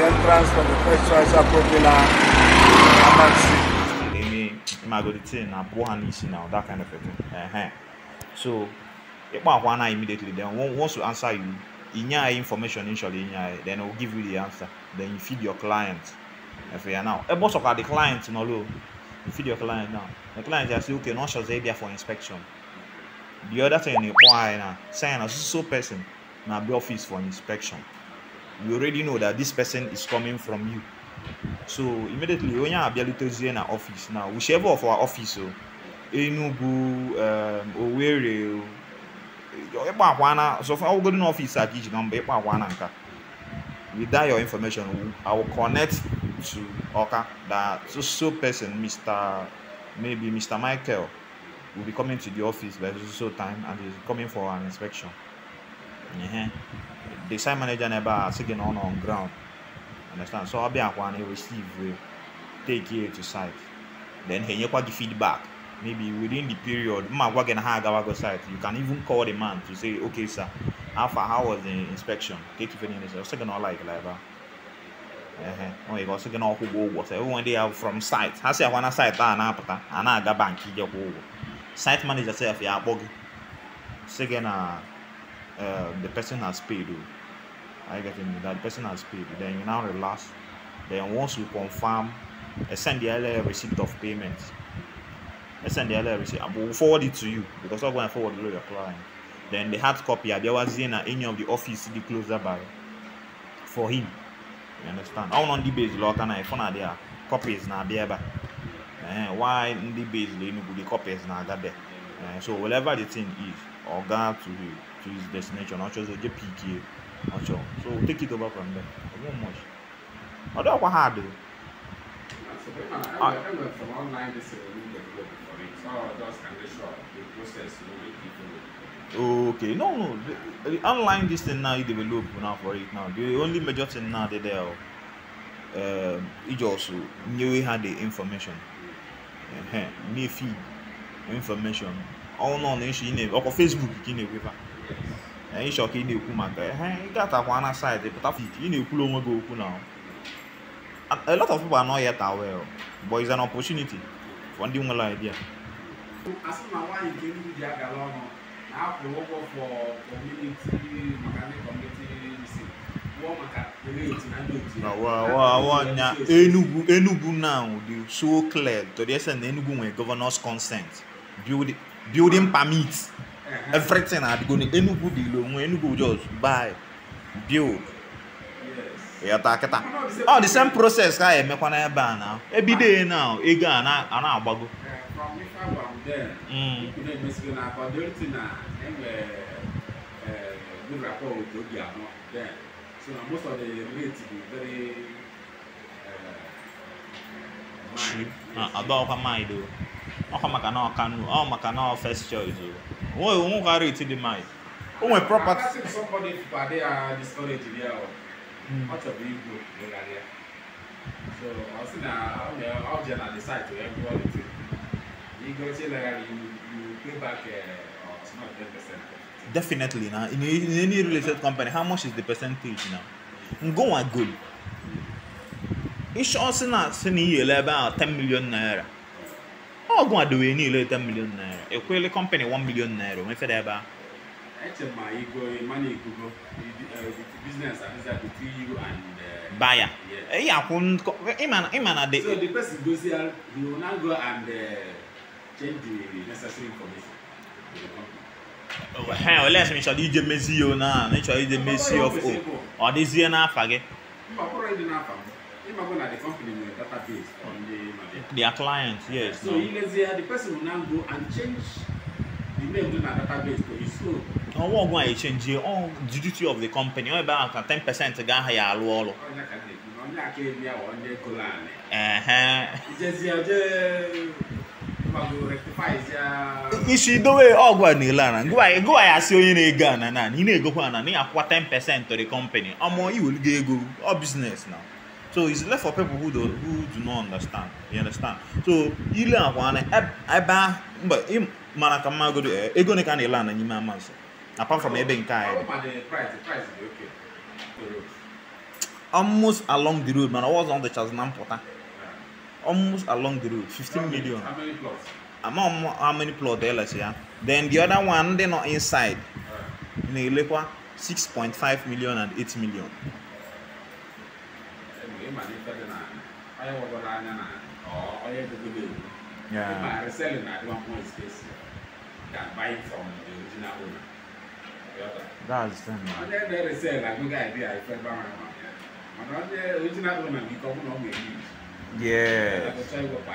the entrance from the first choice Apro Villa Amansi. Maybe Magolite na Bohan Isi now, that kind of a thing. Uh-huh. So, Ipahuana immediately then once you answer you, in your information initially, then it give you the answer. Then you feed your client. If you are now, a boss of the client, no, you feed your client now. The client just say, okay, not sure they're there for inspection. The other thing, why now? Sign a so person, now be office for inspection you already know that this person is coming from you so immediately onye abịalutezie na office now whichever of our office o oh, Enugu um, Owerri ịkpa oh, akwa na sọfọ ọgụgụ na ọfịs a ka iji na mba ịkpa akwa na nka with that your information I will connect to Oka that so so person Mr maybe Mr Michael will be coming to the office by so so time and he is coming for an inspection. Uh -huh. the site manager never asked on on ground. Understand? So I'll be a one, he receive, uh, take here to site. Then he give feedback. Maybe within the period, site. You can even call the man to say, okay, sir, how far how was the inspection? Take if anything is second or like like that. Uh-huh. Oh, you got second or who was everyone they are from site. I say I want a site and apata and I got bank site manager self yeah bogi, Second uh uh, the person has paid oh. you. I get me that person has paid you. Then you now relax. Then once you confirm, I send the earlier receipt of payment. I send the earlier receipt. I will forward it to you because I'm going to forward it to your client. Then the hard copy, there was in any of the office the closer by for him. You understand? All on the base, lot and I found out there. Copies now there, but eh, why in the base, they know the copies now that there. Eh, so whatever the thing is, or God to you to his destination. I'll just get PK. i sure. So we'll take it over from there. won't much. I don't know what hard I, Okay, no, no. The, the online this thing now you develop now for it now. The only major thing now they there, uh, it also knew we had the information. Uh-huh. New feed information. All on the issue Facebook, in the ịchọ ka ị na-ekwu maka ya ị ga-atakwa pụta ị na-ekwula onwe gị okwu na a lot of people are not yet aware but it's an opportunity for ndị nwere idea asị na nwaanyị nke ndị ji Enugu Enugu now dị so clear to the extent na Enugu nwere governors consent building permit everything adịgo enugu dị ilu onwe oh, enugu just buy build ịghọta kịta ọ the same process ka emekwa n'ebe a na ebido na ego a na-agbago So na most of the rate is very cheap. Eh, Adọọkwa ah, mind Ọkwa maka na ọ maka na ọ first choice Wọ́n ò ń wárò ètí di máa. O nwere property. Akasị somebody pade a di storage di ya ọ. Ọ chọrọ igwu ịgharị ya. So ọ sị na ọ jee na the site ya gụọ the Igochi legharị you pay back ọtụtụ na 10%. Definitely na in, in any related company how much is the percentage now? Ngụnwa gold. Ịchọ sị na sị na iyele ebe a 10 million naira ọgụ adowe niile ete milion naira ekwele kọmpanị 1 milion naira onwe feda ebe a e e, e, uh, buyer yeah. akwụ ịma na the so the person goes here he will now go and uh, change oh, asị m chọrọ ije mezie o na na ịchọrọ ije mezie of o ọ dịzie n'afa gị Imagine the company will database on the Madeira. Their clients, yes. So no. Ilezia, the person will now go and change the name of the database to his own. Ọwọ́ ọgbọ́n àyè ṣèǹjì ọ̀hún the duty of the company ọ̀hún oh, ẹ̀ ten percent gà áhà yà àlọ́ ọ̀lọ́. Ọ̀nyà kà dé kí ọ̀nyà kà èmi àwọn ọ̀nyà ẹ̀kọ́ láàánì. go ọ̀jẹ̀ gbàgbọ́ rectify ìjà. Isi idowe ọgwụ a na-ele ana gụwa ya asị onye na-ego ana na ị na-egokwa ana na ị akwụkwa ten percent to the company ọmụ iweligo go ọ business now. So it's left for people who do who do not understand. You understand? So ile akwa na ebe mba mana ka mma godo eh, ego ne ka na ile ana nyime amanso. Apart from ebe nke anyị. Almost along the road, man. I was on the chance na mpụta. Almost along the road, 15 million. How many plots? how many plots there ya? Then the other one they not inside. Na-elekwa 6.5 million and 8 million. cái bản đi phơi này ai vào vào này này có ai được cái gì, nhưng mà cái xe này dạ, dạ, dạ. nó không có space can buy from the original owner That's them. And then they say like good idea if I buy my one. And the original owner because no me. Yeah.